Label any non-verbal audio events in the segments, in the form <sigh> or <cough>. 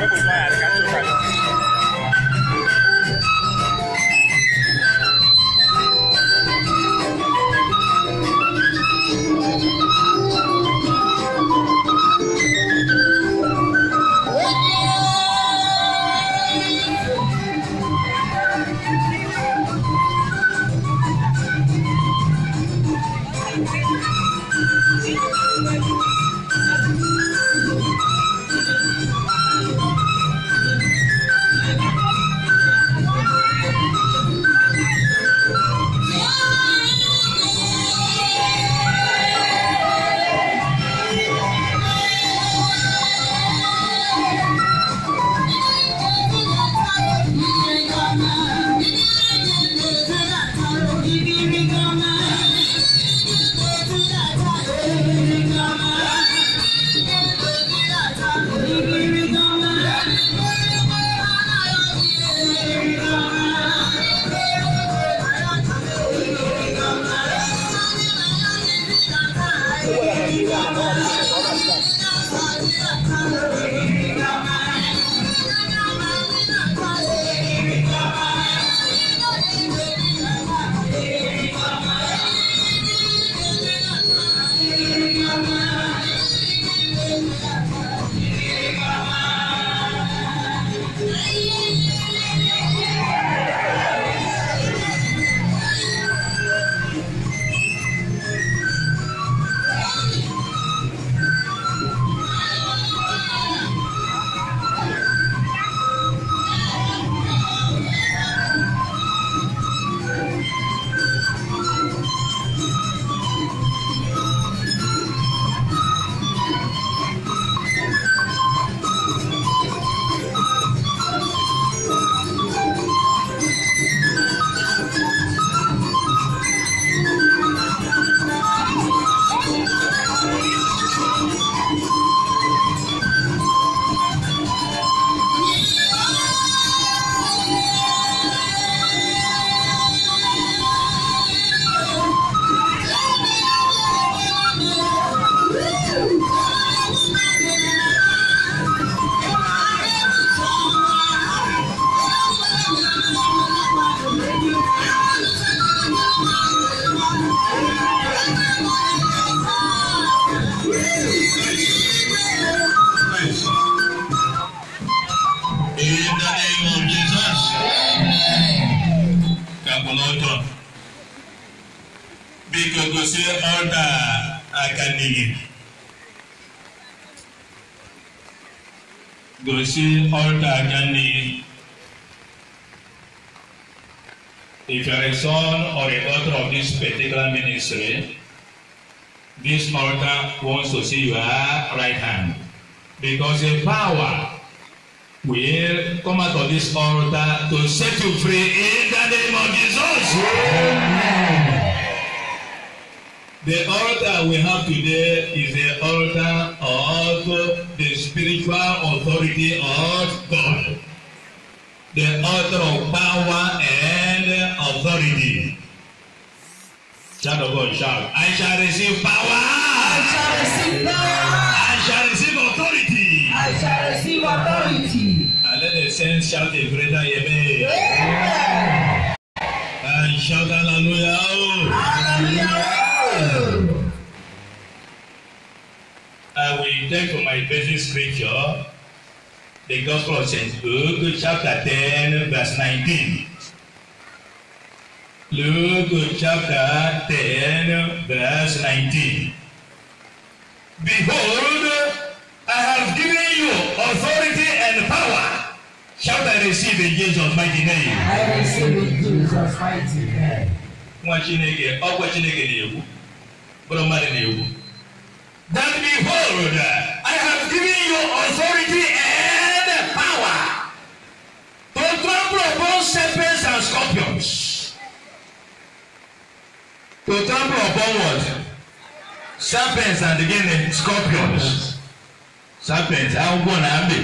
我不刷呀。say, this altar wants to see your right hand. Because the power will come out of this altar to set you free in the name of Jesus. Amen. The altar we have today is the altar of the spiritual authority of God. The altar of power and authority. Child of God, shout. I shall receive power. I shall receive power. I shall receive authority. I shall receive authority. And uh, let the saints shout a greater amen. Yeah. And shout hallelujah. Hallelujah. I uh, will take for my basic scripture the Gospel of St. Luke, chapter 10, verse 19. Luke chapter 10, verse 19. Behold, I have given you authority and power. Shall I receive in Jesus' mighty name? I receive in Jesus' mighty name. Nwa Chineke, ọkwa Chineke na-ekwu, bụrụ mmadụ na-ekwu. That behold, I have given you authority and power to trample upon serpents and scorpions to trample upon what serpents and again eh, scorpions serpents agwọ na abe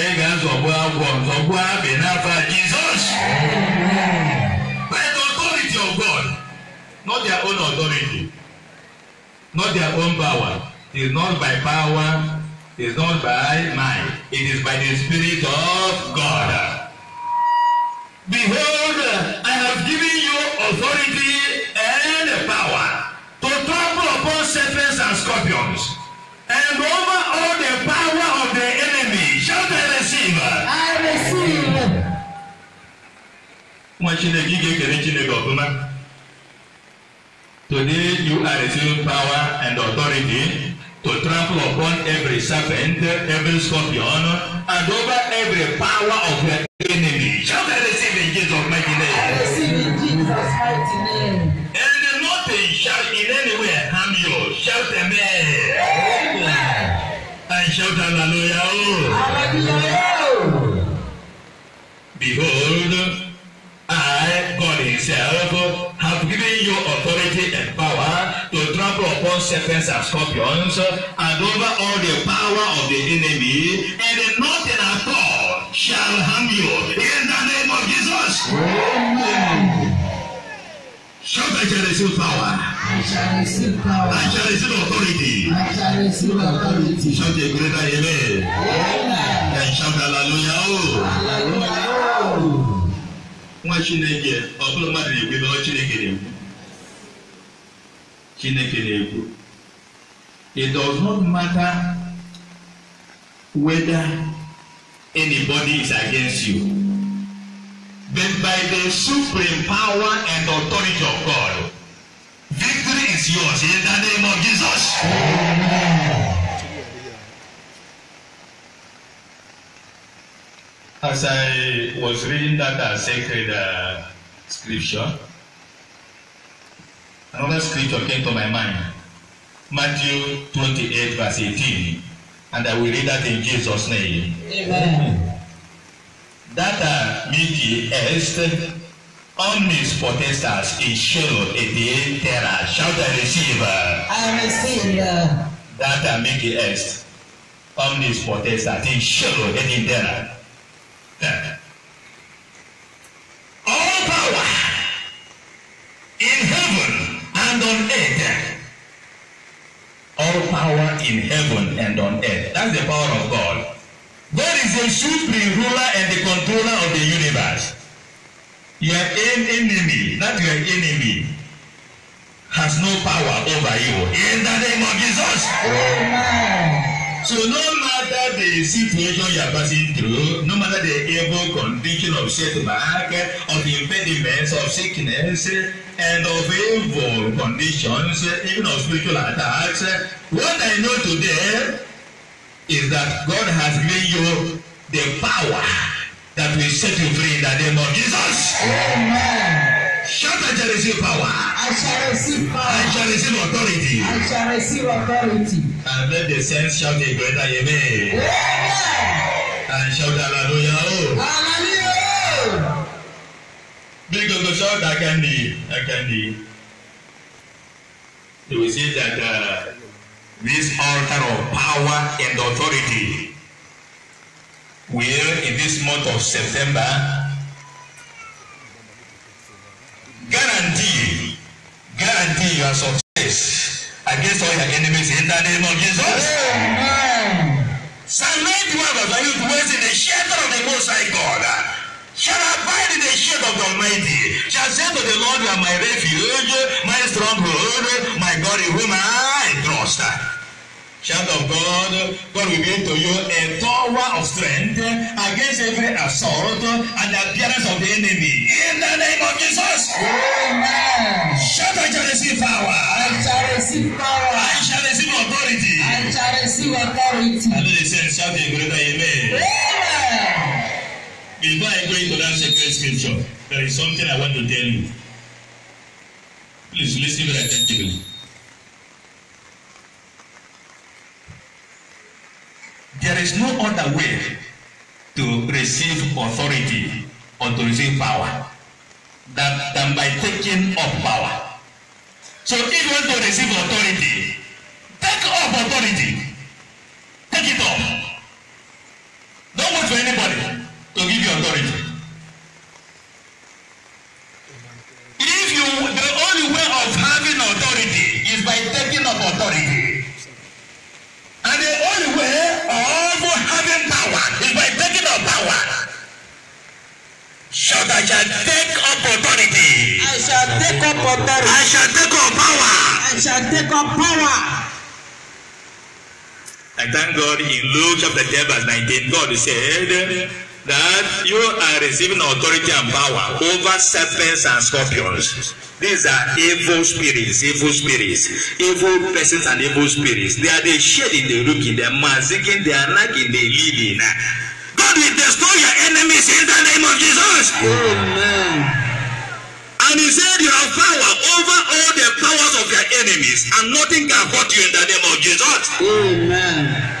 ị ga-azọgbu agwọ zọgbu abe n'afa Jesus by the authority of God not their own authority not their own power it is not by power It is not by mind, it is by the Spirit of God. Behold, I have given authority and power to trample upon serpents and scorpions and over all the power of the enemy. Shall I receive. I receive. Nwa Chineke ị ga Chineke ọfụma. Today you are receiving power and authority to trample upon every serpent, every scorpion, and over every power of the enemy. Shall I receive in Jesus' mighty name? I receive in Jesus' mighty name. And nothing shall in any way harm you. Shout amen. Amen. And shout hallelujah. Hallelujah. Behold, I, God Himself, have given you a serpents and scorpions and over all the power of the enemy and nothing at all shall harm you in the name of Jesus. Amen. Shout I shall receive power. I shall receive power. I shall receive authority. I shall receive authority. Shout a greater amen. Amen. And shout hallelujah. Oh. Hallelujah. Nwa Chineke, ọ bụrụ mmadụ na-ekwe na ọ Chineke na-ekwe chineke na-ekwu it does not matter whether anybody is against you but by the supreme power and authority of God victory is yours in the name of Jesus. As I was reading that uh, sacred uh, scripture. Another scripture came to my mind Matthew 28, verse 18, and I will read that in Jesus' name. Amen. That are meet the earth, all means protesters in Shiloh, a terror. Shout, I receive. I receive. That are meet the earth, all means protesters in Shiloh, a terror. All power and on earth. All power in heaven and on earth. That's the power of God. God is the supreme ruler and the controller of the universe. Your enemy, not your enemy, has no power over you. In the name of Jesus. Amen. So no matter the situation you are passing through, no matter the evil condition of setback, of impediments, of sickness, and of evil conditions, even of spiritual attacks, what I know today is that God has given you the power that will set you free in the name of Jesus. Amen. Shout, I shall receive power. I shall receive power. I shall receive authority. I shall receive authority. And let the saints shout a greater amen. Yeah. And shout hallelujah. Oh. Hallelujah. Bí gbogbo ṣọ́ dákẹ́ ní ẹ̀kẹ́ ní. They will see that uh, this altar of power and authority will in this month of September guarantee guarantee your success against all your enemies in the name of Jesus. Amen. Psalm 91 verse 1 you dwell in the shelter of the Most High God shall abide in the shade of the Almighty shall say to the Lord you are my refuge my stronghold my God in whom I trust. Child of God, God will give to you a tower of strength against every assault and appearance of the enemy. In the name of Jesus. Amen. Shout, I shall receive power. I shall receive power. I shall receive authority. I shall receive authority. I know they said, shout a greater amen. Amen. Before I go into that sacred scripture, there is something I want to tell you. Please listen very attentively. There is no other way to receive authority or to receive power that, than by taking up power. So if you want to receive authority, take up authority. Take it up. Don't wait for anybody to give you authority. chapter 10 verse 19, God said that you are receiving authority and power over serpents and scorpions. These are evil spirits, evil spirits, evil persons and evil spirits. They are the shedding, the looking, the maziking, the nagging, the leading. God will destroy your enemies in the name of Jesus. Amen. And he said, You have power over all the powers of your enemies, and nothing can hurt you in the name of Jesus. Amen.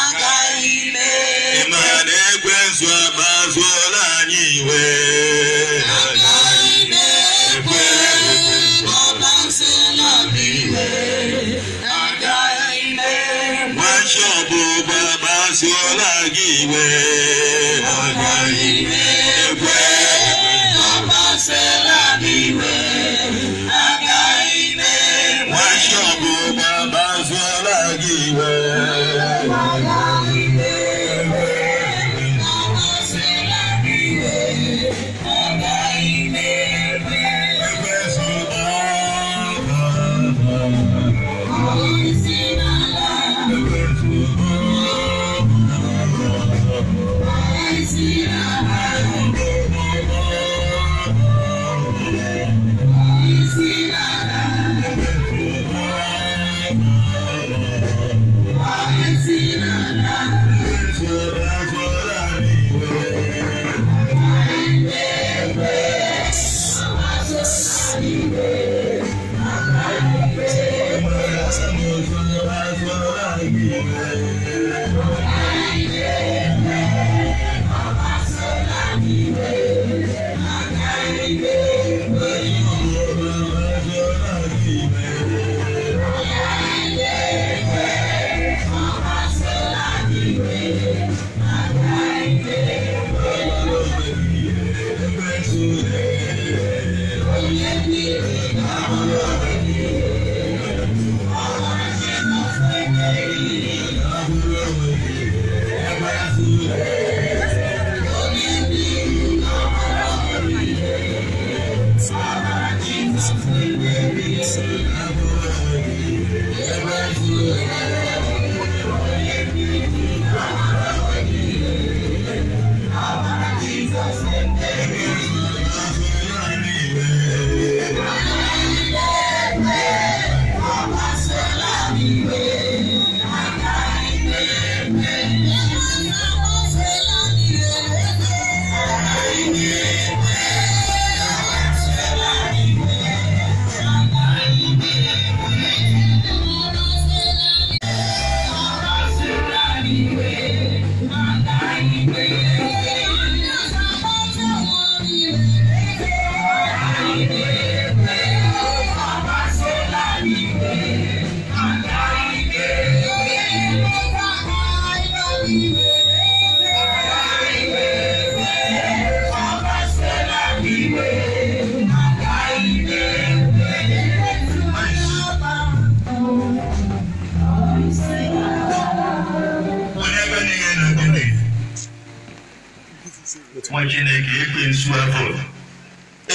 ụmụ chineke ekwensu ekwe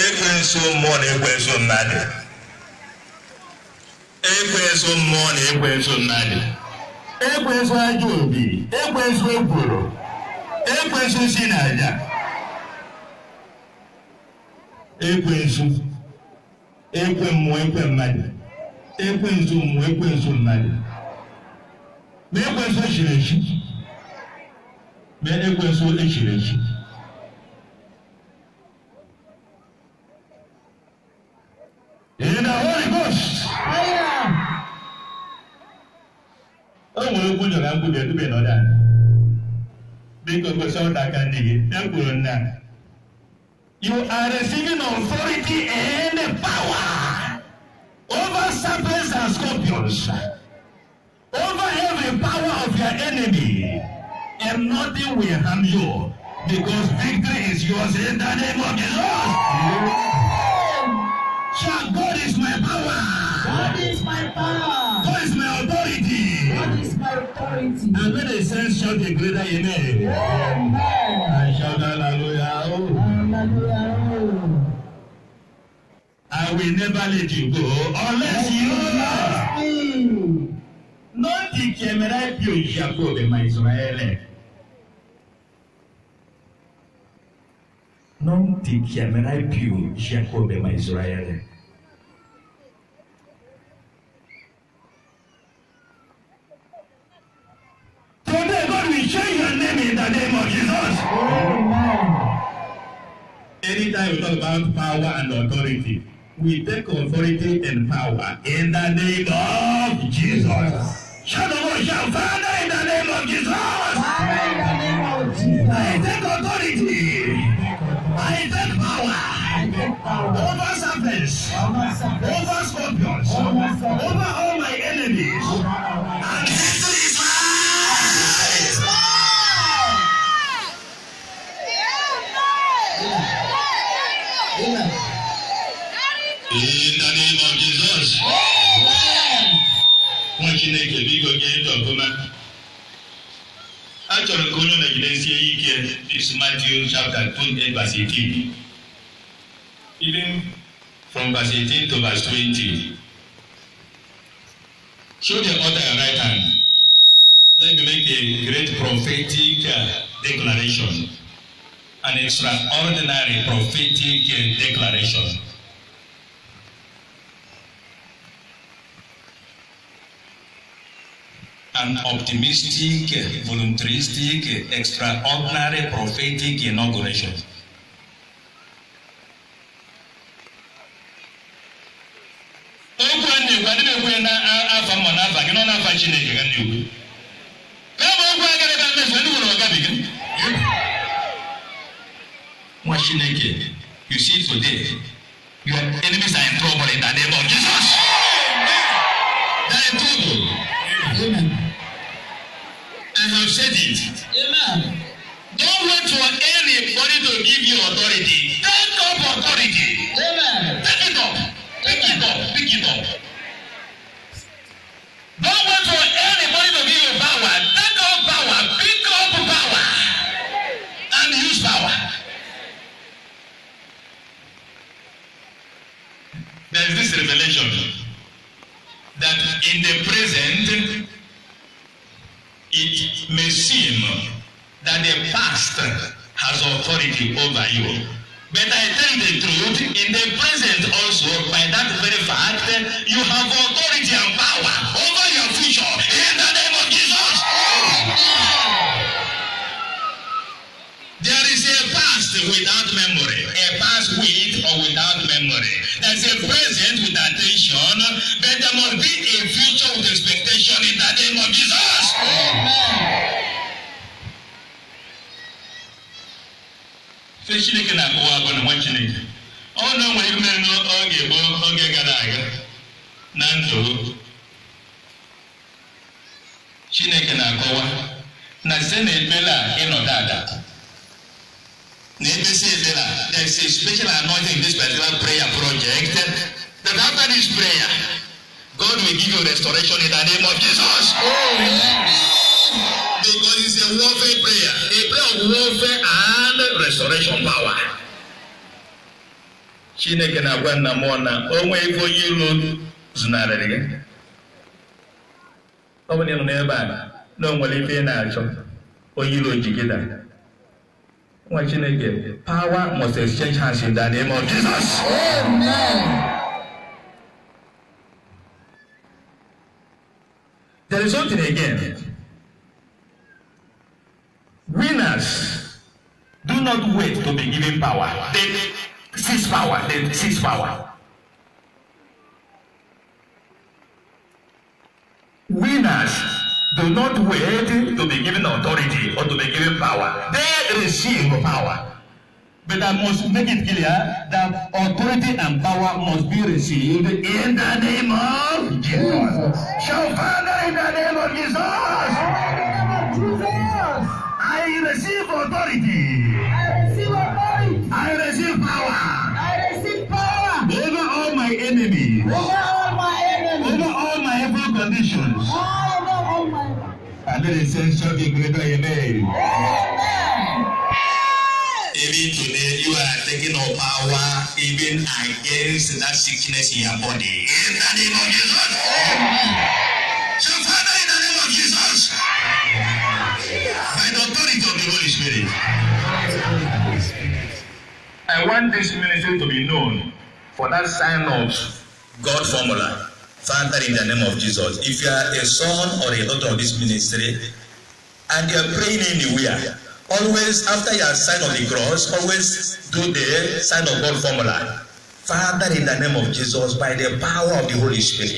ekwensu mmụọ na ekwe ekwensu mmadụ ekwensu mmụọ na ekwensu mmadụ ekwensu ajọ obi ekwensu ekworo ekwensu si Ekwe ekwensu ekwe mmụọ ekwe mmadụ ekwe ekwensu mmụọ ekwe ekwensu mmadụ ma ekwensu echiri echi ma ekwensu echiri echi in the Holy Ghost. Onwere okwu nyọrọ nkwubi edube n'ọda. Biko gosi ọta aka ndị gị, ya kwuru nna. You are receiving authority and power over serpents and scorpions, over every power of your enemy, and nothing will harm you, because victory is yours in the name of the Lord. Yeah. Shout, God is my power. God is my power. God is my authority. God is my authority. And when they say shout a greater amen. Amen. I shout hallelujah. Oh. Hallelujah. Oh. I will never let you go unless you love me. Not the Kemerai Pio Jacob, my Israel. non ti chiamerai più Giacobbe ma Israele. Today God will change your name in the name of Jesus. Amen. Anytime we talk about power and authority, we take authority and power in the name of Jesus. Shout the word, shout Father in the name of Jesus. Father in the name of Jesus. I take authority over serpents, over scorpions, over all my enemies. Amen. In the name of Jesus. Amen. Nwa Chineke biko gee ndị ọfụma. Achọrọ ka onye ọ nọgidesi ike Matthew chapter 28 verse 18 even from verse eighteen to verse twenty, Show the other your right hand. Let me make a great prophetic uh, declaration, an extraordinary prophetic uh, declaration. an optimistic, uh, voluntaristic, extraordinary prophetic inauguration. ife ndị na-ekwu ya n'afa mma n'afa gị nọ n'afa chineke ga na-ekwu ka bụ okwu agara ga mmefu ndị nwere ọgabiga nwa chineke you see today your enemies are in trouble in the name of jesus they are in trouble amen i have said it amen don't wait for anybody to give you authority take up authority amen take it up take it up take it up. in the present, it may seem that the past has authority over you. But I tell the truth, in the present also, by that very fact, you have authority and power over your future. without memory. A past with or without memory. There's a present with attention, but there must be a future with expectation in the name of Jesus. Amen. site chineke na-akọwa abụọ na nwa chineke ọ na o nwere ime n'oge gboo oge gara aga na ndụ chineke na-akọwa na site na a ịnọdụ ada NBC there. is a special anointing in this particular prayer project. That after this prayer, God will give you restoration in the name of Jesus. Oh. Because it's a warfare prayer, a prayer of warfare and restoration power. Chineke na-agwa nna mmụọ na onwe ebe onye iro zụnarịrị gị. Ọ bụrụ na ị nọ n'ebe a, na o nwere ife ị na-achọ, onye iro ji gị dara nwa chineke power must exchange hands in the name of jesus amen there is something again winners do not wait to be given power they seize power they seize power winners not waiting to be given authority or to be given power. They receive power. But I must make it clear that authority and power must be received in the name of Jesus. Shall Father in the name of Jesus. I receive authority. under the censorship of Greater Yemen. Even today, you are taking up power even against that sickness in your body. In the name of Jesus. So, Father, in the name of Jesus, by the authority of the Holy Spirit, I want this ministry to be known for that sign of God formula. Father, in the name of Jesus, if you are a son or a daughter of this ministry and you are praying anywhere, always after your sign of the cross, always do the sign of God formula. Father, in the name of Jesus, by the power of the Holy Spirit,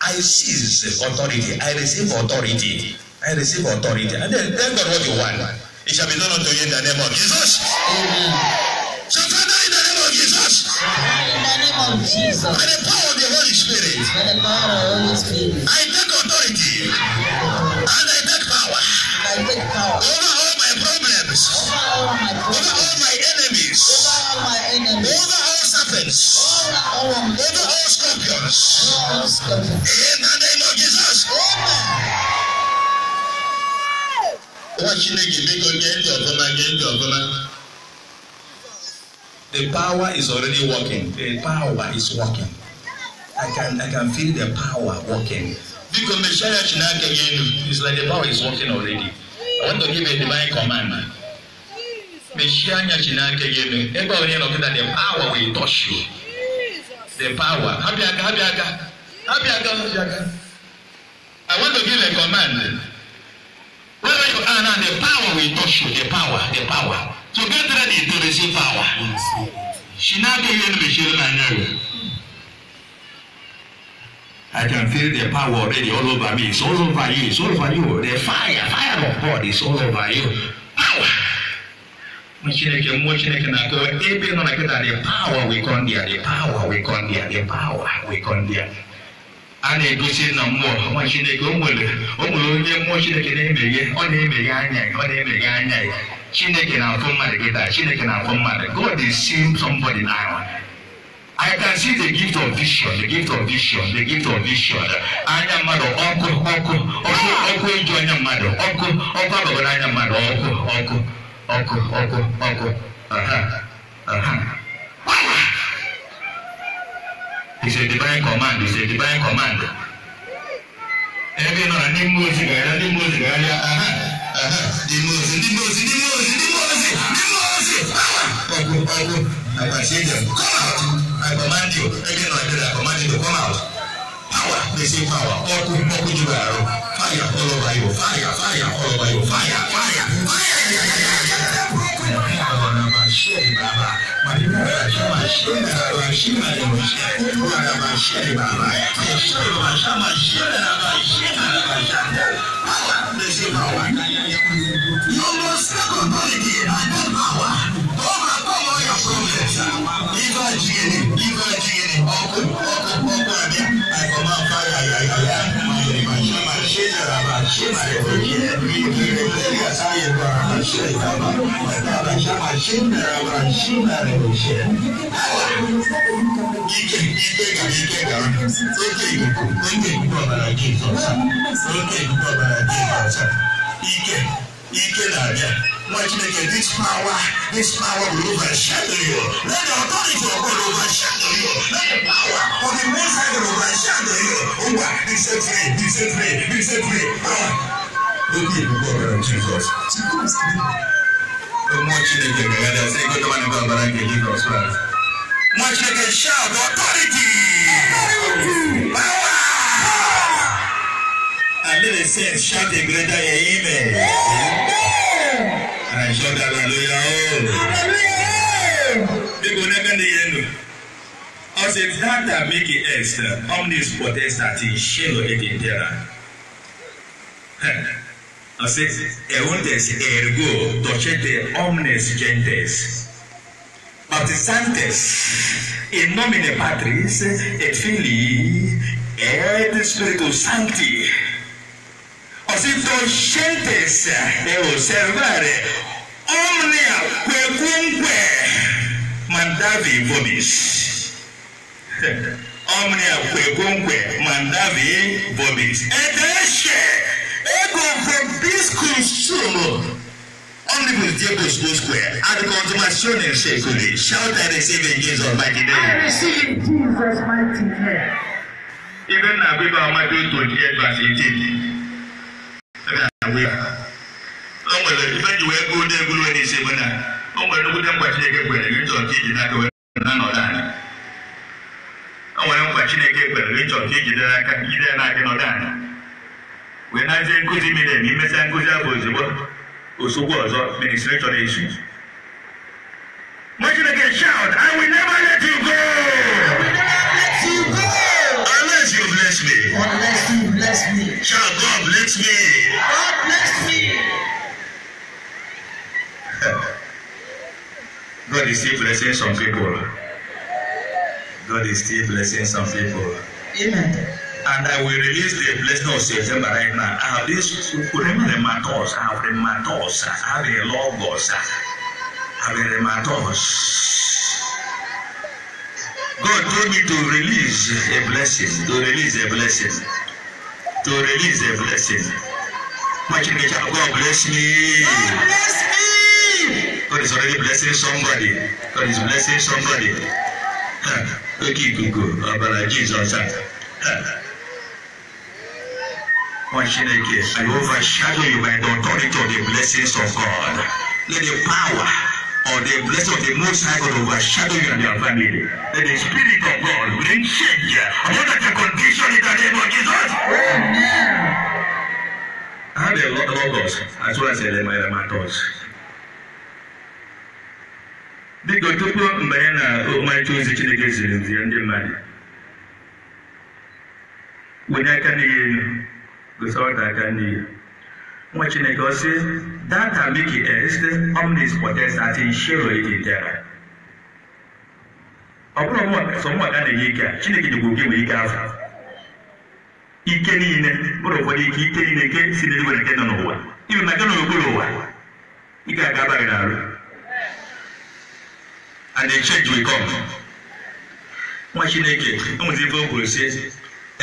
I seize authority. I receive authority. I receive authority. And then tell God what you want. It shall be done unto you in the name of Jesus. Amen. of Jesus. By the power of the Holy Spirit. By the power of the Holy Spirit. I take authority. And I take power. And I take power. Over all my problems. Over all my problems. Over all my enemies. Over all my enemies. Over all serpents. Over all, scorpions. Over all scorpions. In the name of Jesus. Amen. Nwa Chineke, dịka onye ndị ọbụla, nye ndị ọbụla. The power is already working. The power is working. I can I can feel the power working. Because the church now again it's like the power is working already. I want to give a divine command. Meshianya Chinake again. Everybody knows that the power will touch you. The power. Happy aga, happy aga. Happy aga, happy aga. I want to give a command. Wherever you are now, the power will touch you. The power, the power. So get ready to receive power. Shinaka yen my Nanyari. I can feel the power already all over me. It's all over you. It's all over you. The fire, fire of God is all over you. Power. Mụ Chineke mmụọ Chineke na-akọwa ebe nọ na nkịta the power we come there, the power we come there, the power we come there. a na-egosi na mmụọ ọma chineke o nwere onye mmụọ chineke na-emeghe ọ na-emeghe anya ọ na-emeghe anya chineke na-afụ mmadụ gị taa chineke na-afụ mmadụ god is seeing somebody now I can see the gift of vision, the gift of vision, the gift of vision. Anya mmadụ ọkụ ọkụ ọkụ ọkụ eju, anya mmadụ ọkụ ọkụ agbagoro anya mmadụ ọkụ ọkụ ọkụ ọkụ ọkụ aha aha is a divine command is a divine command ebe nọrọ n'ime ozi gara n'ime ozi gara aha aha n'ime ozi n'ime ozi n'ime ozi n'ime ozi n'ime ozi ọgwụ ọgwụ agbachi ejem come out I command you ebe nọrọ ebe I command you to come out power dey say power ọkụ ọkụ juru arụ fire all over you fire fire all over you fire fire fire. mashiach baba maneno ya mashiach na heshima ya mashiach na mashiach baba heshima ya mashiach na mashiach na mashiach lazima wananyanya you must step on body and that power over power your progress iva jini iva jini okay ရှိပါတယ်ဘုရားဒီဒီလေးကစားရပါရှိတာပါဒါကရှာမရှင်းတာပါရှင်းတာလေရှင်ဒီကိဒီကိဒီကိကသိကိကိုသိကိကိုပါလာကြည့်ဆိုစားသိကိကိုပါလာကြည့်ဆိုစားဒီကိ ike na-abịa nwa chineke this power this power will overshadow you let the authority of God overshadow you let the power of the most high God overshadow you ngwa be set free be set free be set free ah obi ebube ọbara jizọs mmụọ chineke mere ya sị ego dọba n'ebe ọbara nke jizọs nwa chineke shout authority. authority. Bible said, shout a greater amen. I shout hallelujah. People never know. As a that that make it extra, omnis potestat in shelo et in terra. I said, eundes ergo docete omnes gentes. Baptizantes in nomine Patris et Filii et Spiritus Sancti osintoscentes observare omnia quecunque mandavi vobis omnia quecunque mandavi vobis ed esce ego vobis consumo omnibus diebus usque ad consumationem seculi shalt I receive in Jesus mighty name I receive Jesus mighty name even na bible amadu twenty eight verse eighteen. o nwere ife ji wee goo na-egulu n'isi na o nwere nnukwute mkpa Chineke kwere gị iji nwere mkpa Chineke kwere gị nchọ ka aka n'aka ijide na nọdụ anyị wee nazie nkụzi miri emi imesia nkụzi abụ ozugbo ọzọ ministri chọrọ Mgbe I Unless you bless me. Unless bless me. shall God bless me. God bless me. <laughs> God is still blessing some people. God is still blessing some people. Amen. And I will release the blessing of September right now. I have this rematos, I have rematos, I have a logos, I have a rematos. God told me to release a blessing, to release a blessing to release a blessing. Much in it, God bless me. God bless me. God is already blessing somebody. God is blessing somebody. Okay, go, go. Ah, Abala uh, Jesus. Chineke, I overshadow you by the authority of the blessings of God. Let the power or the blessing of the Most High God overshadow you and your family. Let the Spirit of God bring change upon that condition in the name of Jesus. Amen. I have a lot of us as well as Elema Matos. Biko tupu mgbe ya na ọmarịcha ozi Chineke ziri nzi ya ndị mmadụ wụnye aka n'ihe elu gosi ọta aka n'ihe Nwa Chineke ọ sị data miki est omnis potens at ịdị idintera ọ bụrụ sọ mụaka na-enye ike a Chineke nyegbu gị nwere ike afọ ike niile bụrụ ụfọdụ ike ike niile nke si n'eluigwe nke nọ n'ụwa Iru na nke nọ n'okpuru ụwa ị ga-aga abaghị n'arụ and the change will come nwa Chineke enwezi ife e e o kwuru si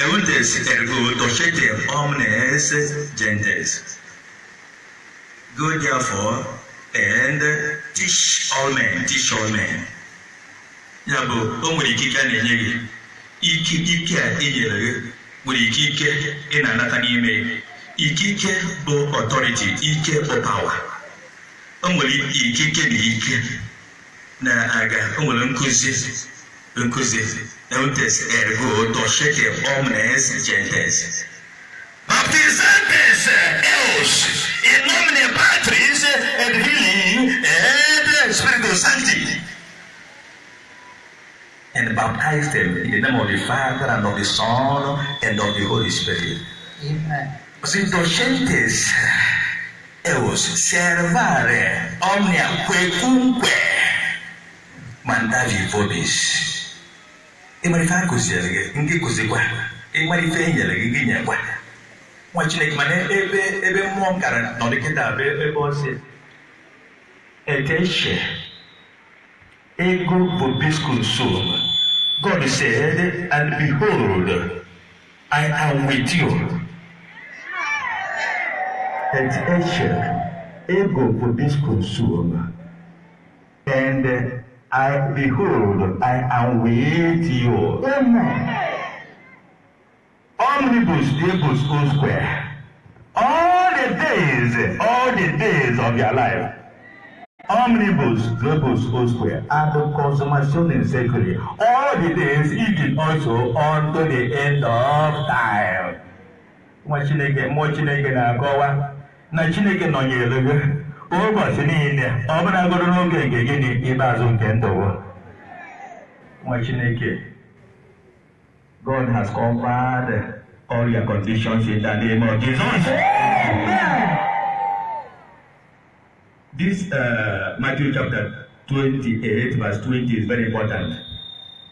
eutes ergo docete omnes gentes Go therefore and uh, teach all men, teach all men. Ya bụ o nwere ikike a na-enye gị ikike a i nyere gị nwere ikike ị na-anata n'ime gị ikike bụ ọtọriti ike bụ pawa o nwere ikike na ike na-aga o nwere nkụzi nkụzi eutes ergo docete omnes gentes baptizantes eos in nomine Patris et Filii et Spiritus Sancti. And baptize them in the name of the Father and of the Son and of the Holy Spirit. Amen. Così docentes eos servare omnia quecunque mandavi vobis. E ma rifare così, anche così qua. E ma rifare anche qua. nwa chineke mana ebe ebe mmụọ m gara nọ dịkịta bụ ebe ọ si eteche ego bobisconsul God said and behold I am with you eteche ego bobisconsul and I behold I am with you amen. omnibus equals O square. All the days, all the days of your life. Omnibus O square. And in All the days, even also the end of na Chineke nọnyere gị niile ọ n'oge nke nke ndụ nwa God has covered all your conditions in the name of Jesus. This uh, Matthew chapter 28, verse 20 is very important.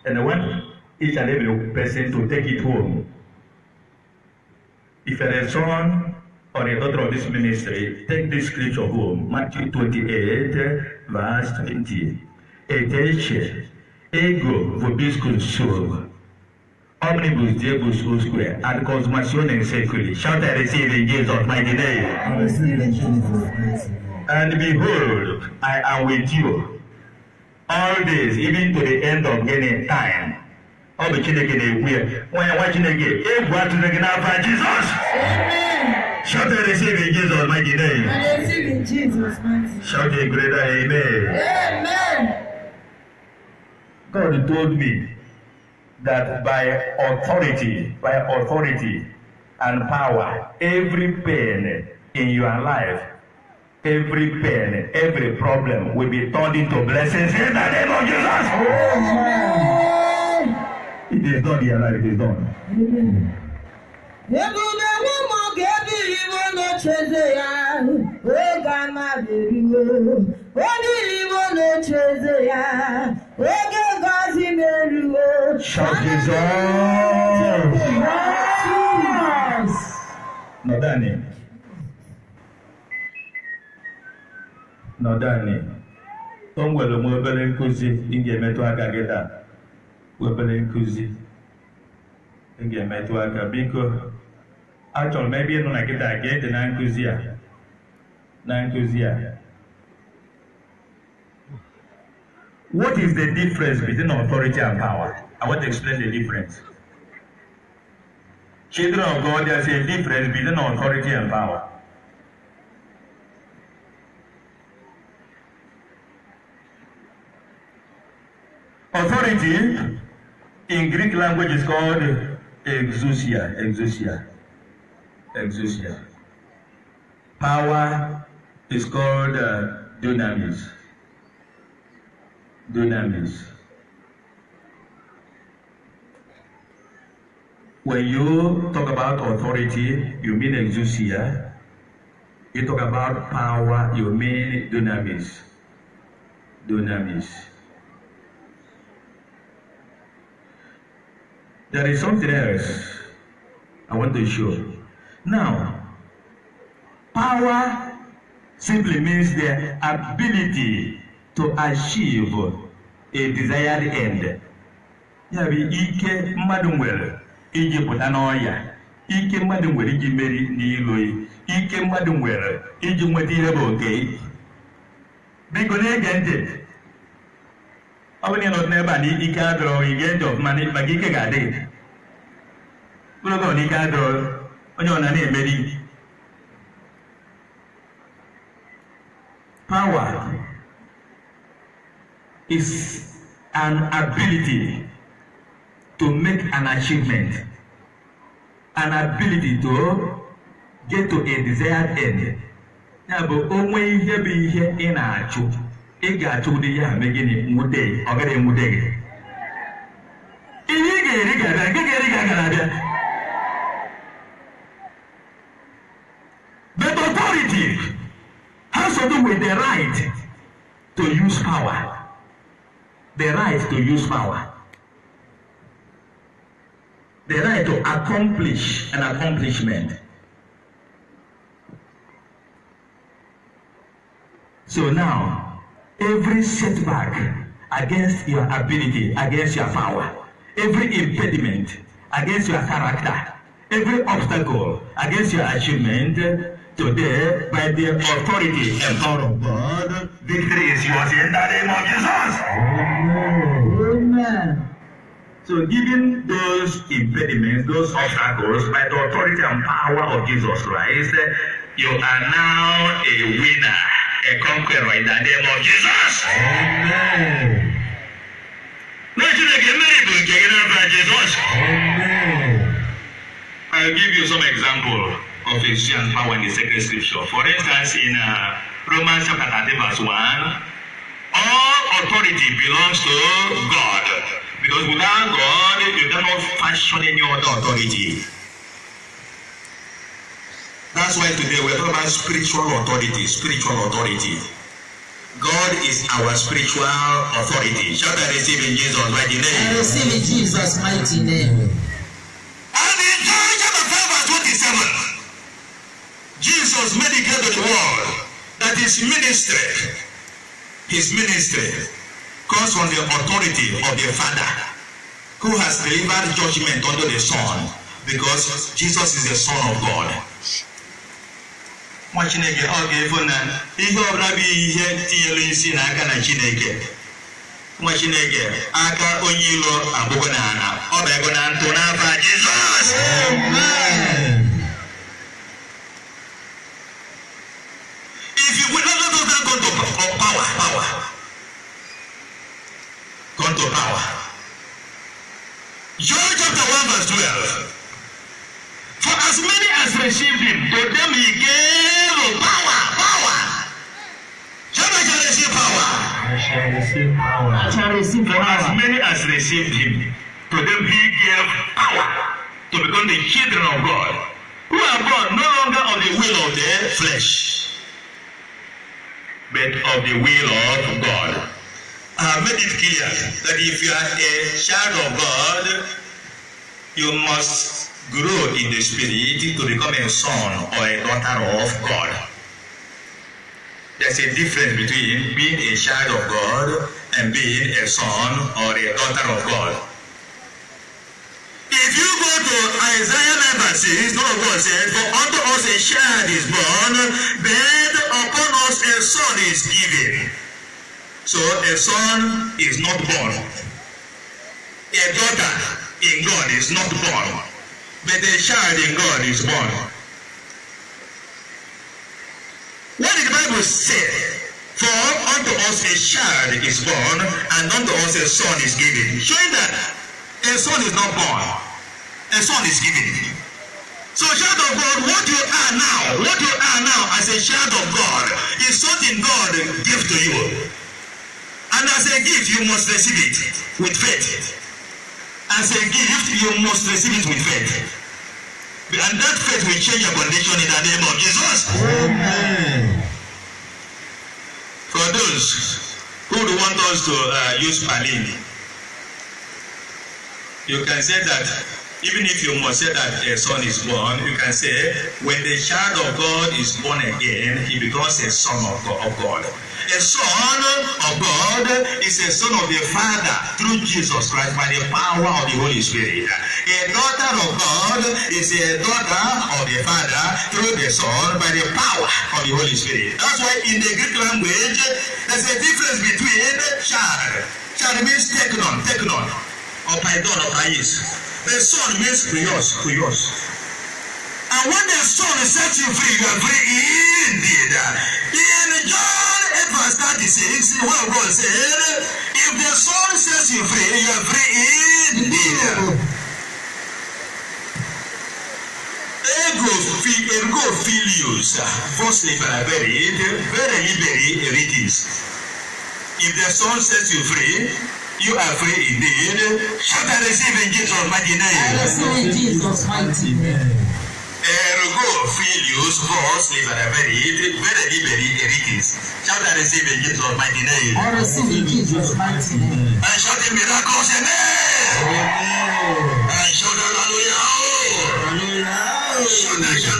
And I want each and every person to take it home. If you're a son or a daughter of this ministry, take this scripture home. Matthew 28, verse 20. Attention, ego vobiscum sub. Omnibus Jebu Square and consummation in safely. Shout I receive in Jesus' mighty name. I receive in Jesus' And behold, I am with you all days, even to the end of any time. ọ bụ Chineke na-ekwu ya nwa ya nwa Chineke egwu atụrụ gị n'afọ Jizọs shout a receive in Jesus mighty name shout a greater amen. God told me that by authority, by authority and power, every pain in your life, every pain, every problem will be turned into blessings in the name of Jesus. Amen. It is done, your life is done. Amen. Ebube mụ ga ya, wee ga ama onye iwe na echeze ya wee Emmanuel shall dissolve the O nwere m obere nkụzi ị ga-emetụ aka gị taa. biko achọrọ m ebe ị nọ na nkịta ka dị na nkụzi a na nkụzi a What is the difference between authority and power? I want to explain the difference. Children of God, there's a difference between authority and power. Authority in Greek language is called exousia, exousia, exousia. Power is called uh, dunamis dunamis. When you talk about authority, you mean exousia. You talk about power, you mean dunamis. Dunamis. There is something else I want to show. Now, power simply means the ability to achieve a desired end ya bụ ike mmadụ nwere iji pụta n'ọya ike mmadụ nwere iji meri n'ilo ike mmadụ nwere iji nweta ihe bụ oke biko na-ege ntị ọ bụrụ na ị n'ebe a na ike adọrọ gị gee ntị ọfụma maka ike ga-adị gị mkpụrụ adọrọ onye ọ na na-emeri pawa is an ability to make an achievement, an ability to get to a desired end. Ya bụ onwe ihe bụ ihe ị na-achụ, ị ga-achụ ụdị ya mee gịnị nwute ọ gaghị enwute gị. Ihe ị ga-eri ga-abịa, nke ga-eri ga gara abịa. But authority has to do with the right to use power the right to use power, the right to accomplish an accomplishment. So now, every setback against your ability, against your power, every impediment against your character, every obstacle against your achievement Today, by the authority and power of God, victory you yours in the name of Jesus. Amen. So, given those impediments, those obstacles, by the authority and power of Jesus Christ, you are now a winner, a conqueror in the name of Jesus. Amen. can get Jesus. Amen. I'll give you some examples of Ephesians power in the sacred scripture. For instance, in uh, Romans chapter 13, verse 1, all authority belongs to God. Because without God, you cannot fashion any other authority. That's why today we're talking about spiritual authority. Spiritual authority. God is our spiritual authority. Shall and receive in Jesus' mighty name. I receive in Jesus' mighty name. And in John chapter 5, verse 27. Jesus made it the world that his ministry, his ministry comes from the authority of the Father who has delivered judgment unto the Son because Jesus is the Son of God. nwa Chineke ọ ga-efu na ihe ọbụla bụ ihe tinyere isi n'aka na Chineke nwa Chineke aka onye ilo abụgo na ala ọ bụ ego na ntụ n'afọ Jizọs received him, to them he gave power to become the children of God, who are born no longer of the will of the flesh, but of the will of God. I have made it clear that if you are a child of God, you must grow in the spirit to become a son or a daughter of God. There's a difference between being a child of God and being a son or a daughter of God. If you go to Isaiah 9 verse 6, God of God said, For unto us a child is born, then upon us a son is given. So a son is not born. A daughter in God is not born. But a child in God is born. What did the Bible say? For unto us a child is born, and unto us a son is given. Showing that a son is not born, a son is given. So child of God, what you are now, what you are now as a child of God is something God gave to you. And as a gift, you must receive it with faith. As a gift, you must receive it with faith. And that faith will change your condition in the name of Jesus. Amen. For those who want us to uh, use Palini, you can say that even if you must say that a son is born, you can say, when the child of God is born again, he becomes a son of God. A son of God is a son of the Father through Jesus Christ by the power of the Holy Spirit. A daughter of God is a daughter of the Father through the Son by the power of the Holy Spirit. That's why in the Greek language, there's a difference between child. Child means technon, technon, or paidon, or pais. The Son means Prius, Prius. And when the Son sets you free, you are free indeed. In John 8 verse 36, what God said, if the Son sets you free, you are free indeed. Ego fi ergo filius, firstly liberate, very liberate it is. If the Son sets you free, You are free indeed. Shout and receive in Jesus' mighty name. I eh, receive in Jesus' mighty name. Ergo filius vos liberaverit, vere liberi eritis. Shout and receive in Jesus' mighty name. I receive in Jesus' mighty name. And shout the miracles, amen. Amen. And shout hallelujah. Hallelujah. Shout the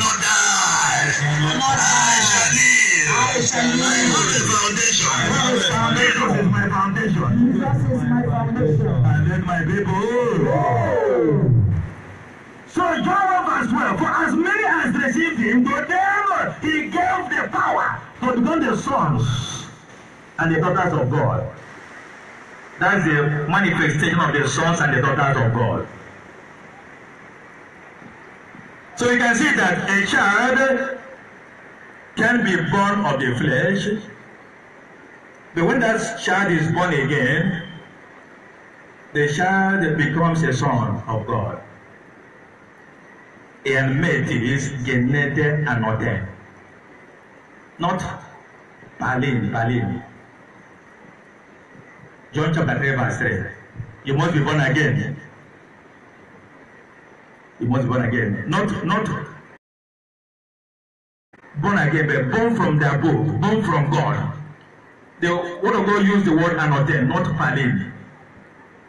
foundation. What is foundation? What foundation? What is my foundation? Jesus is my foundation. And then my people. So John verse 12, for as many as received him, to them he gave the power to become the sons and the daughters of God. That's the manifestation of the sons and the daughters of God. So you can see that a child can be born of the flesh, but when that child is born again, the child becomes a son of God. And mate is genete anote, not palin, palin. John chapter 3 verse 3. You must be born again. You must be born again. Not, not born again, but born from the above, born from God. The Word of God used the word anoten, not palim.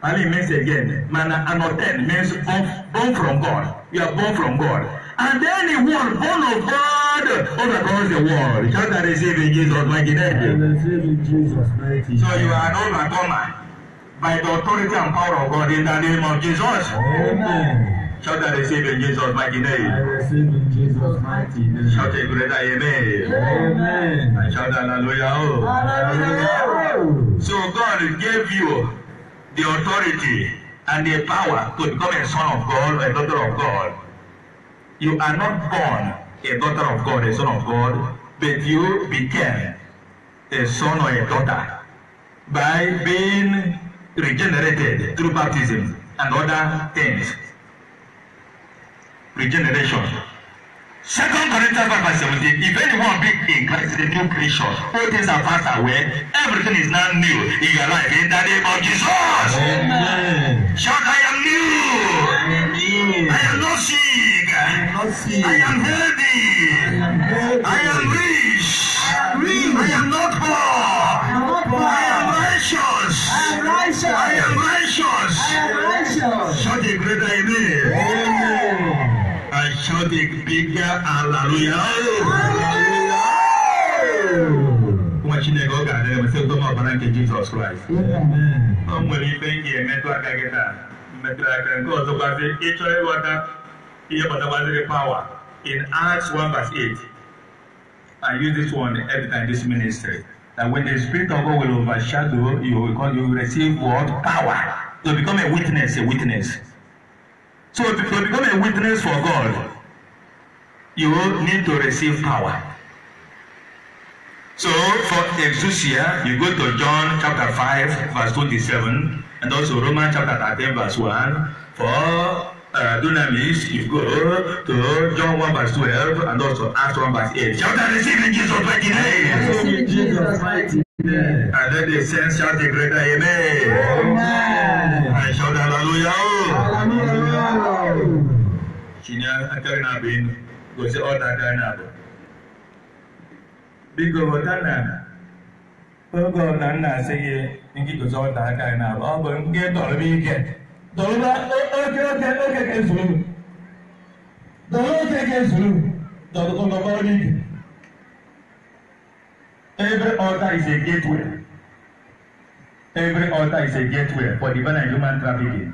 Palim means again, man anoten means born, born from God. You are born from God. And anyone born of God all across the world. Shall that receive Jesus' mighty name? Jesus' mighty So you are an overcomer by the authority and power of God in the name of Jesus. Amen. Shout and receive in Jesus' mighty name. I receive in Jesus' mighty name. Shout a greater amen. Amen. And shout hallelujah. Oh. Hallelujah. So God gave you the authority and the power to become a son of God or a daughter of God. You are not born a daughter of God, a son of God, but you became a son or a daughter by being regenerated through baptism and other things regeneration. Second Corinthians five verse seventeen. If anyone be in Christ, the new creation, all things are passed away. Everything is now new in your life. In the name of Jesus. Amen. Shout, I am new. I am not sick. I am not sick. I am healthy. I am, I am rich. I am, rich. I am not poor. I am, not poor. I am righteous. I am righteous. I am righteous. I am righteous. Shout a greater amen cannot take bigger hallelujah. nwa chineke ọ ga-adị ebe sị ụtọma ọbara nke jizọs kraịst ọ nwere ife m ga-emetụ aka gị taa metụrụ aka nke ọzọ gbazi ịchọ ịghọta ihe gbatagbaziri power in acts 1 verse 8 i use this one every time this ministry that when the spirit of God will overshadow you because you receive what power to become a witness a witness so to, to become a witness for God you need to receive power. So for exousia, you go to John chapter five, verse twenty-seven, and also Romans chapter 13, verse one. For uh, dunamis, you go to John one, verse twelve, and also Acts one, verse eight. Shout out, receive in Jesus' mighty name! Receive Jesus' mighty name. And let the saints shout the greater amen. Amen. And shout hallelujah. Hallelujah. Hallelujah gosi ọdada na-abụ biko ghọta na oge ọ na nna asị gị nke gosi ọdada na-abụ ọ bụ nke tọrọ ike tọrọba oke oke oke ka ezuru tọrọ oke ka ezuru tọrọkọrọ ike every altar is a gateway every altar is a gateway for the and human trafficking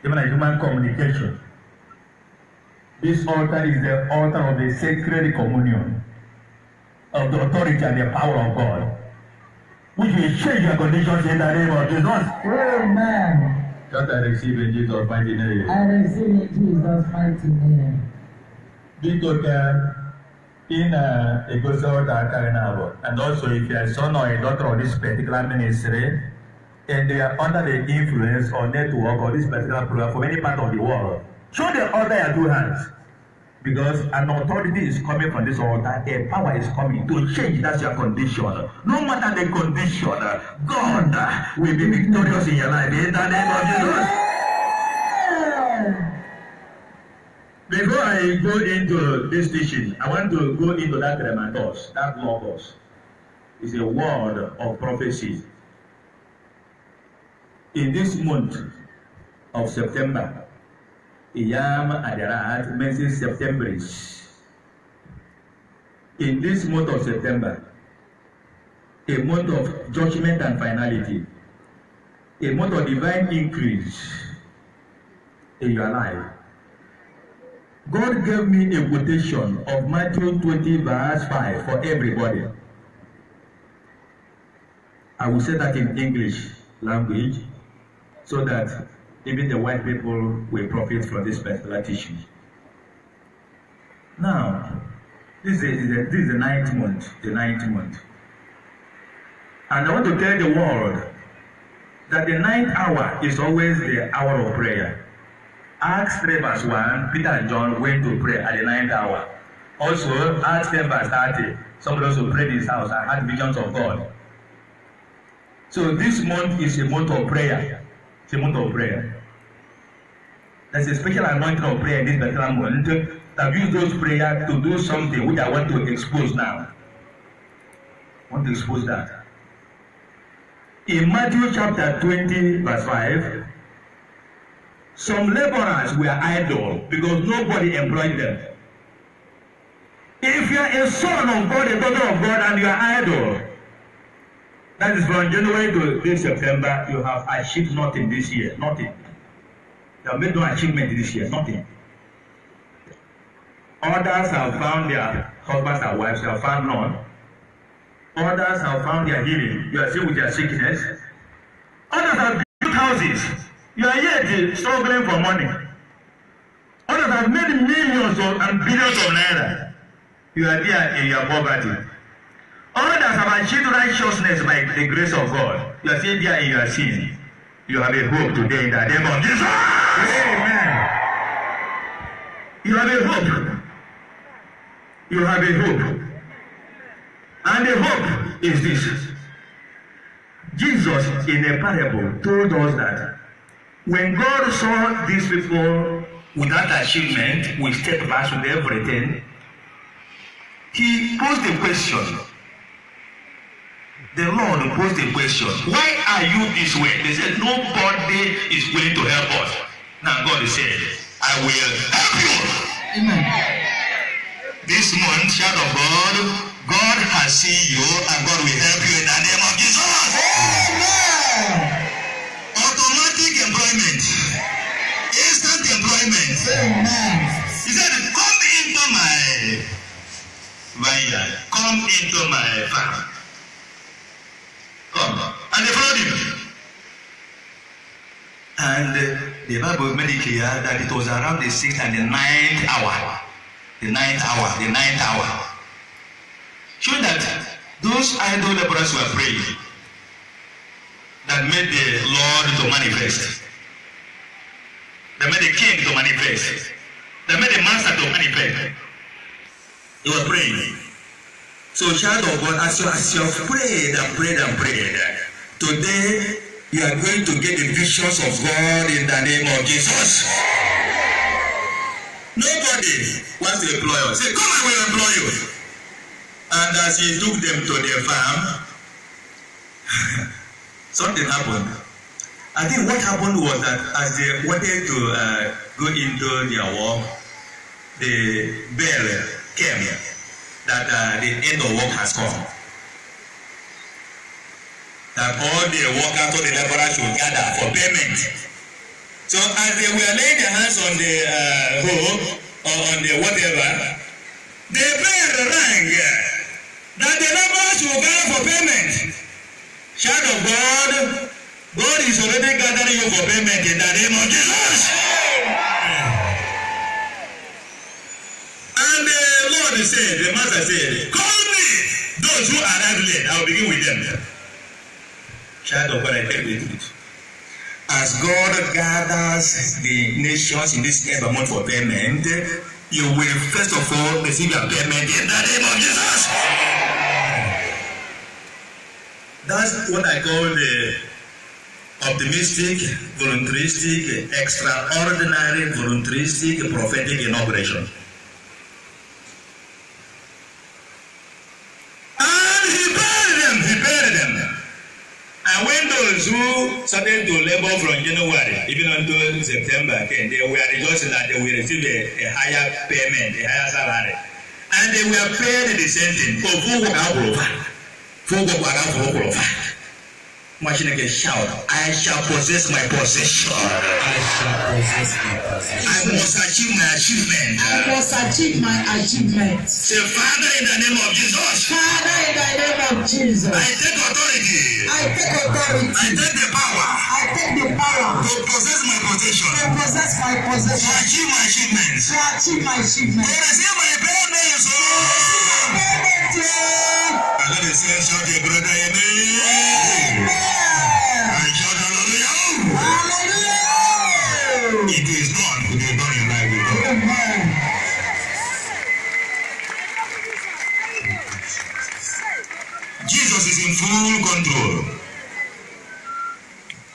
divine human communication. This altar is the altar of the sacred communion of the authority and the power of God. Which will change your conditions in the name of Jesus. Amen. That I receive in Jesus' mighty name. I receive in Jesus' mighty name. Be ka in uh, egosi ọta aka na abụọ and also if you are a son or a daughter of this particular ministry and they are under the influence or network of this particular program from any part of the world. Show the altar your two hands. Because an authority is coming from this altar, a power is coming to change that's your condition. No matter the condition, God will be victorious in your life. In the name of Jesus. Before I go into this teaching, I want to go into that rematos, that logos. It's a word of prophecy. In this month of September, Iyama Adarat mentions September. In this month of September, a month of judgment and finality, a month of divine increase in your life. God gave me a quotation of Matthew 20 verse 5 for everybody. I will say that in English language so that even the white people will profit from this particular teaching. Now, this is the, this is the ninth month, the ninth month. And I want to tell the world that the ninth hour is always the hour of prayer. Acts 3 verse 1, Peter and John went to pray at the ninth hour. Also, Acts 10 verse 30, somebody also prayed in his house and had visions of God. So this month is a month of prayer. It's a month of prayer. There's a special anointing of prayer in this particular month that use those prayers to do something which I want to expose now. I want to expose that. In Matthew chapter twenty verse five, some laborers were idle because nobody employed them. If you are a son of God, a daughter of God, and you are idle, that is from January to this September, you have achieved nothing this year, nothing that made no achievement this year, nothing. Others have found their husbands and wives, you have found none. Others have found their healing, you are still with their sickness. Others have built houses, you are yet struggling for money. Others have made millions of, and billions of naira, you are there in your poverty. Others have achieved righteousness by the grace of God, you are still there in your sin. You have a hope today in the name of Jesus. Amen. You have a hope. You have a hope. And the hope is this. Jesus, in a parable, told us that when God saw these people without achievement, with setbacks, with everything, he posed a question. The Lord posed a question. Why are you this way? They said, Nobody is willing to help us. Now God is saying, I will help you. Amen. This month, child of God, God has seen you and God will help you in the name of Jesus. Amen. Automatic employment. Instant employment. Amen. He said, Come into my vineyard. Come into my farm. Come. And they followed him. And uh, the Bible made it clear that it was around the sixth and the ninth hour. The ninth hour, the ninth hour. Show that those idol laborers were praying that made the Lord to manifest. That made the king to manifest. That made the master to manifest. They were praying. So, child of God, as you, as you have prayed and prayed and prayed, today you are going to get the visions of God in the name of Jesus. Nobody wants to employ us. Say, come I will employ you. And as he took them to their farm, <laughs> something happened. I think what happened was that as they wanted to uh, go into their work, the bell came that uh, the end of work has come that all the workers or the laborers should gather for payment so as they were laying their hands on the uh, hoe or on the whatever the bell rang that the laborers should gather for payment child of God God is already gathering you for payment in the name of Jesus. And the Lord said, the Master said, Call me those who arrive late, I will begin with them. Child of God, I beg with it. As God gathers the nations in this ever month for payment, you will first of all receive your payment in the name of Jesus. That's what I call the optimistic, voluntaristic, extraordinary, voluntaristic, prophetic inauguration. Jews started to labor from January even until September. Okay, they were just that they will receive a, a higher payment, a higher salary. And they were paid the same thing. For who would have For who would have machine again shout i shall possess my possession i shall possess my possession i must achieve my achievement i must achieve my achievement say father in the name of jesus father in the name of jesus i take authority i take authority i take the power i take the power to possess my possession to possess my possession to achieve my achievement to achieve my achievement to receive my payment oh. to receive my payment so let the sense of the brother amen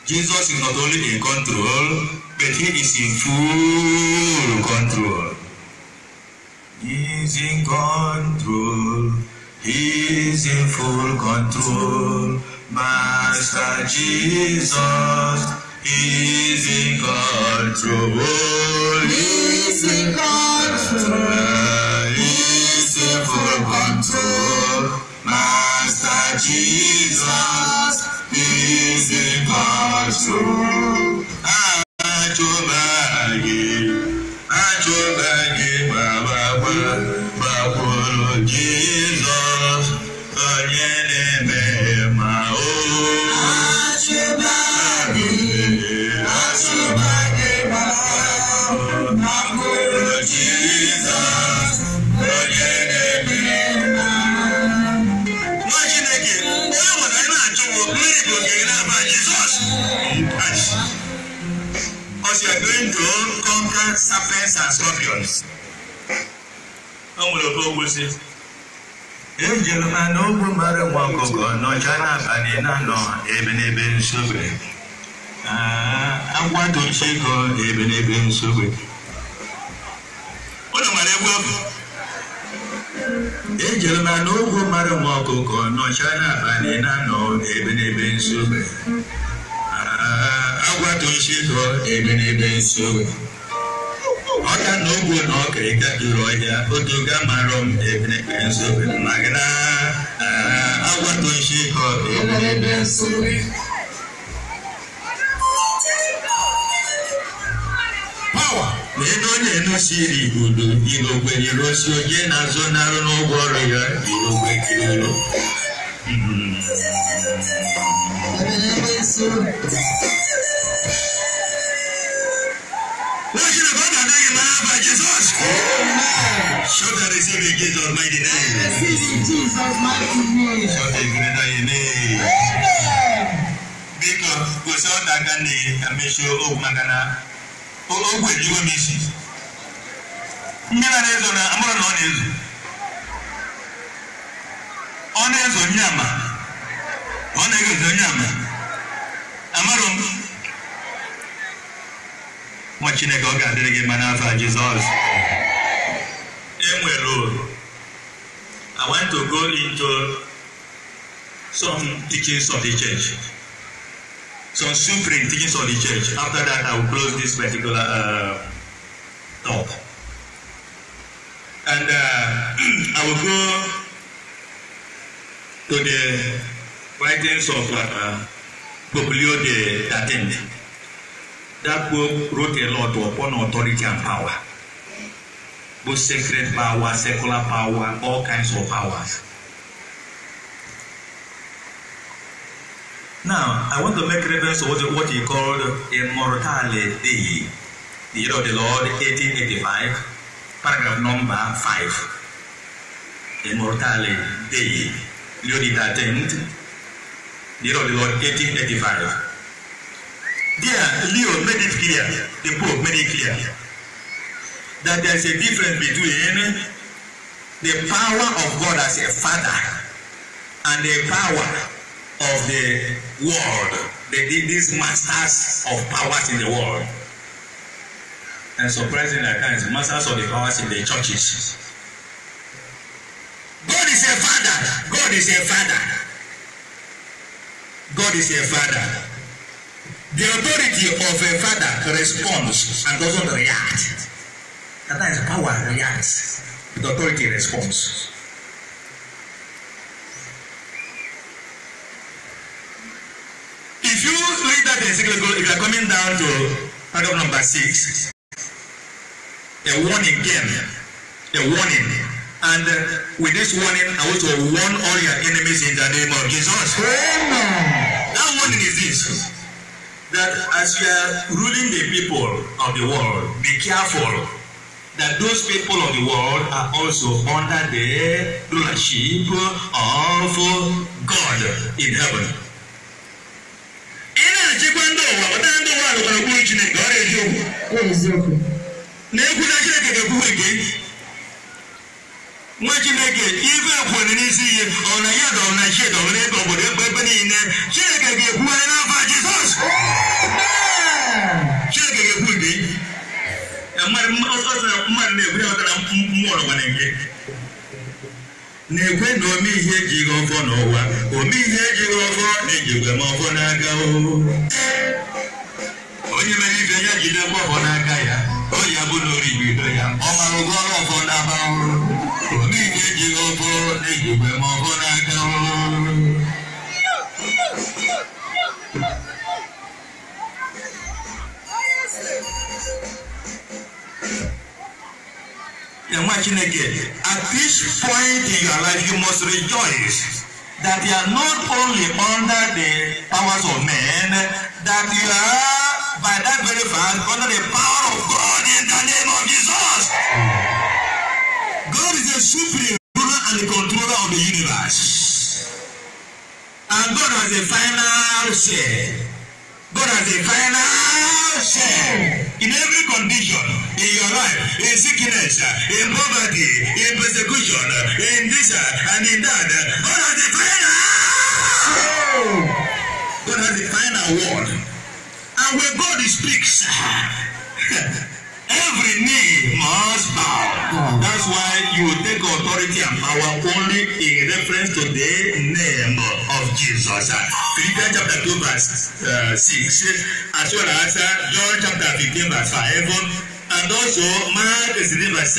Jesus is not only in control, but he is in full control. He is in control. He is in full control. Master Jesus he is in control. He is in control. He is in full control. Master Jesus bizi başvur, acaba snakes and scorpions o nwere oke ogwusi ha mara nwa ọkụkọ n'ọcha n'abalị na-anọ ebe nsogbe ah, nsogbe egwu mara nwa ọkụkọ na-anọ ebe nsogbe ah, ebe nsogbe ọka na ogwu na ọka ịga duru ọhịa odoga marọ m ebinebe nsobe magịna agwatoshi ka ebinebe nsobe ndị onye nụsiri udo irogwe yiri osi onye na-azụ narụ n'ụgwọ ọrụ ya irogwe kiriro Thank Show the receive in Jesus' mighty name. Receive in Jesus' mighty name. Biko, gosi ọ na-aga na emesi okwu maka na ogwu ejiwo m isi. Ndị na ezo na amụrụ na ọ na-ezo. Ọ na-ezo onye Amarụ m. Chineke ọ ga-adịrị gị enwere I want to go into some teachings of the church. Some supreme teachings of the church. After that, I will close this particular uh, talk. And uh, <clears throat> I will go to the writings of uh, Pope Leo the 13th. That book wrote a lot upon authority and power both sacred power, secular power, all kinds of powers. Now, I want to make reference to what, what he called Immortale day. the year of the Lord, 1885, paragraph number 5. Immortale day, Leo the 13th, the year of the Lord, 1885. There, Leo made it clear, the Pope made it clear that there is a difference between the power of God as a father and the power of the world they did these masters of powers in the world and surprisingly at times masters of the powers in the churches God is a father God is a father God is a father the authority of a father responds and doesn't react. And that is power reacts the authority response. If you read that encyclical, if you are coming down to paragraph number six, a warning came, a warning. And uh, with this warning, I want to warn all your enemies in the name of Jesus. Amen. That warning is this that as you are ruling the people of the world, be careful that those people of the world are also under the rulership of God in heaven. Ị na-achịkwa ndị ụwa ọta ndị ụwa alụkwara kwuru Chineke ọ na-eziokwu. Na-ekwu na Chineke ga-ekwuwe gị. Nwa Chineke ife akwụna n'isi ihe ọ na ya dọrọ na shie dọrọ n'ebe obodo egbe ebe niile Chineke ga-ekwuwe n'afọ Jizọs. Chineke ga-ekwu gị. mmadụ na-egwe ọtara mgbọrọgwa na-egwe na-ekwe na ome ihe ejighị ọfọ n'ụwa ome ihe ejighị ọfọ na-ejigwe m ọfọ n'aka onye mere ibe ya jide mgbe ọfọ n'aka ya o ya bụ na oribido ya ọ mara ụgwọ ọrụ ọfọ n'aba. ọrụ ome ihe ejighị ọfọ na-ejigwe m ọfọ n'aka nwa chineke at this point in your life you must rejoice that you are not only under the powers of men that you are by that very fact under the power of God in the name of Jesus. God is the supreme ruler and the controller of the universe and God has a final say. God has the final say in every condition in your life, in sickness, in poverty, in persecution, in this and in that. God has the final say. God has the final word. And when God speaks, <laughs> Every knee must bow. That's why you take authority and power only in reference to the name of Jesus. Philippians chapter 2 verse uh, 6 as well as uh, John chapter 15 verse 5 and also Mark 16 verse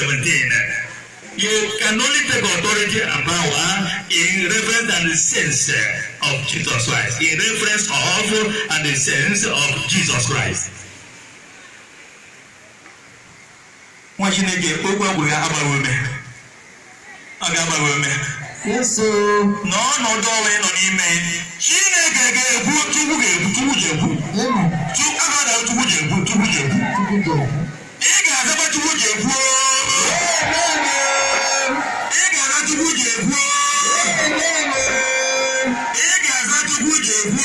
17. You can only take authority and power in reference and the sense of Jesus Christ. In reference of and the sense of Jesus Christ. nwa chineke okwu egwughị agbanwe a ga-agbanwe eme na ọnọdụ ọnwa ị nọ n'ime chineke ga-ekwu chukwu ga-ekwu chukwu jekwu agada chukwu jekwu chukwu jekwu ị ga-azaba chukwu jekwu ị ga-aza chukwu jekwu ị ga-aza chukwu jekwu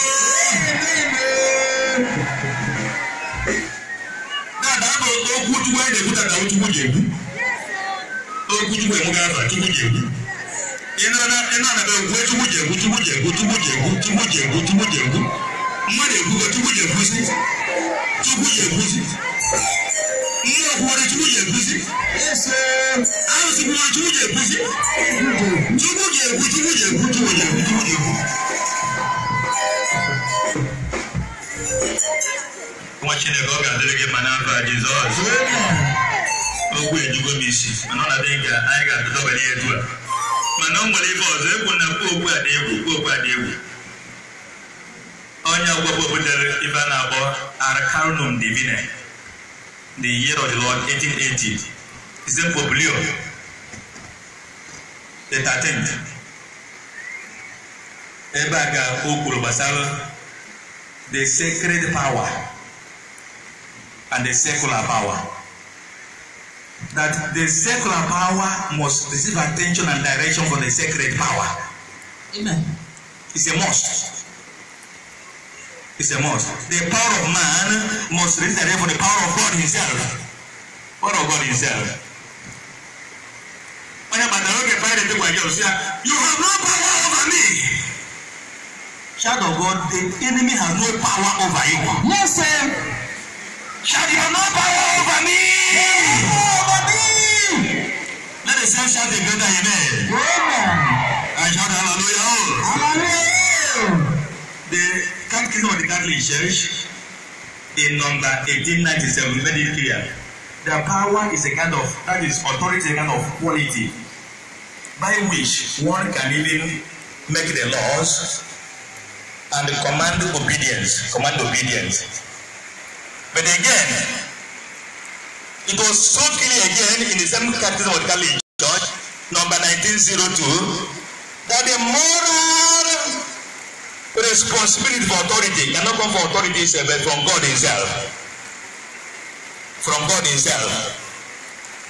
wutuwa da kuta da wutuwa da ku o kutuwa mu ga fa tuwa da ku ina na ina na da ku tuwa da ku tuwa da ku tuwa da ku tuwa da ku tuwa da ku mu da ku tuwa da ku si tuwa da ku si mu da ku da tuwa da ku si yes an su ku tuwa da ku si tuwa da ku tuwa da ku tuwa da ku tuwa da ku nwa chineke ọ ga-adịrị gị ma n'afọ a jizọs okwu ejugo m isi mana ọ na ka anyị ga-adọbanye ya etu a mana o nwere ife ọzọ egwu na kwu okwu adị egwu kwu okwu adị egwu onye ọgbọgbọ butere ife a na-akpọ arcanum divine the year of the lord 1880 ise poblio the 13th ebe a ga o kwuru gbasara the sacred power and the secular power. That the secular power must receive attention and direction from the sacred power. Amen. It's a must. It's a must. The power of man must receive direction from the power of God Himself. Power of God Himself. Onye bàtà lókè fẹ́rẹ̀ tí wàá jẹ́ òsì à, you have no power over me. Child of God, the enemy has no power over you. Yes, sir. Shall your no power over me? Over me. Let the same shout a greater amen. Amen. I shout hallelujah. Hallelujah. The country of the Catholic Church in number 1897 Very clear. The power is a kind of, that is authority, a kind of quality by which one can even make the laws and command obedience, command obedience. But again, it was so clear again in the same catechism of the Catholic Church, number 1902, that the moral responsibility for authority cannot come from authority itself, but from God Himself. From God Himself.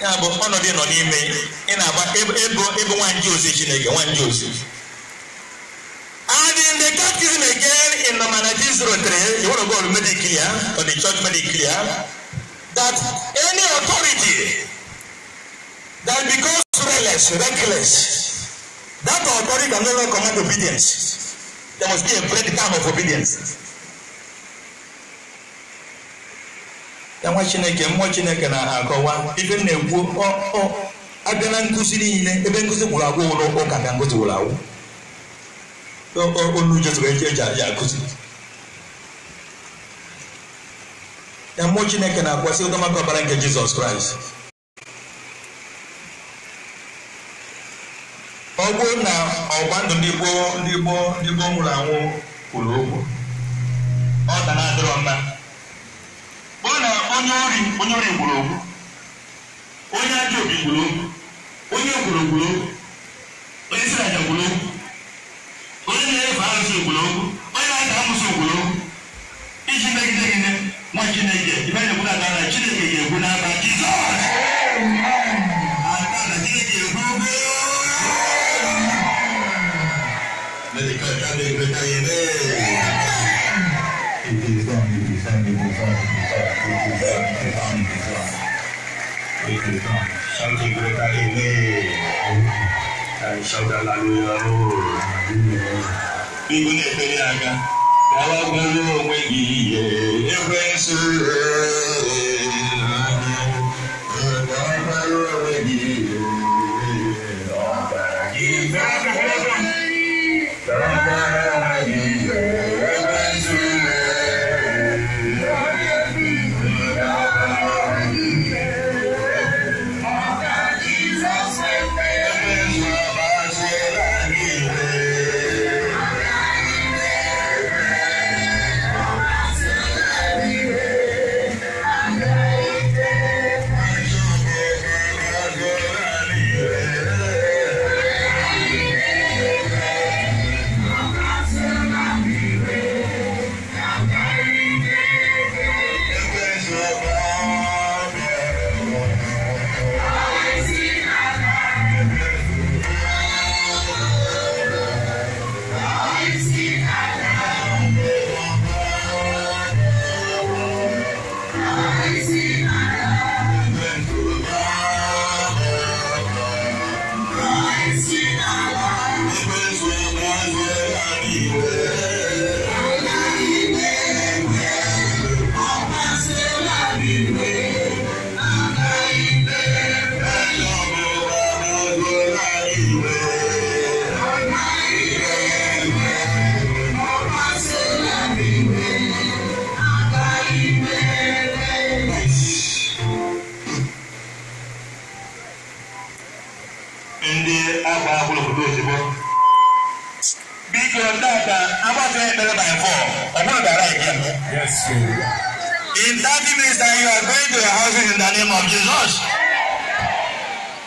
Ya bụ ọnọdụ nọ n'ime ị na-agba ebo ebo nwa nje ozi Chineke nwa one, Joseph that even again in number 1903, you want to go and make it clear, or the church clear, that any authority that becomes reckless, reckless, that authority can no longer command obedience. There must be a breakdown of obedience. Ya nwa Chineke, mmụọ Chineke na-akọwa ife m na-ekwu abịa na nkụzi niile ebe nkụzi gwụrụ agwụ ụlọ ụka bịa nkụzi gwụrụ agwụ onu jezuru eji eji akụziri ya mmụọ chineke na-akwasị ụdọmaka ọbara nke jizọs kraịst ọ bụrụ na ọgba ndụ ndị gboo ndị gboo ndị gboo nwụrụ anwụ kwuru okwu ọ da na-adịrọ mma ọ na onye ori onye ori gburu okwu onye ajọ obi gburu okwu onye gburu gburu okwu onye aja gburu okwu onye na-efe arụsị obodo onye na-ata amụsị obodo iji megide gịnị nwa chineke ibe na-ekwu na atara chineke ga-ekwu n'aka jizọs atara chineke ibu na-ekpere ya aga gawa gbaruo onwe gị ihe ekwensu time you are going to your houses in the name of Jesus.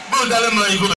Go tell him